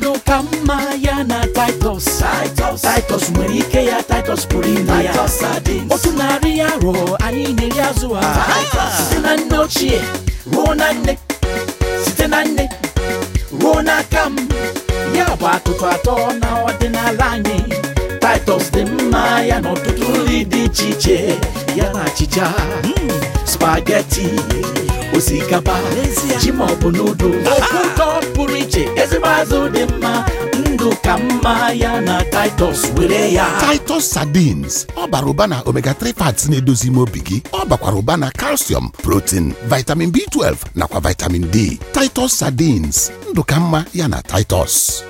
ndụ ka mma ya na Titus Titus nwere ike ya Titus pụrụ ime ya otu narị ya rụọ anyị na-eri azụ ha site na nne ochie ruo na nne site na nne ruo n'aka m ya bụ atụtụ atọ na ọdịnala anyị Titus dị mma ya na ọtụtụ nri dị iche iche ya na achịcha hmm. spageti osikapa ji ma ọ bụ nudul mma ndụ ka mma ya na Titus were ya Titus sardines ọ bara ụba na omega 3 fats na-edozi ime obi gị ọ bakwara ụba na calcium protein vitamin B12 nakwa vitamin D Titus sardines ndụ ka mma ya na Titus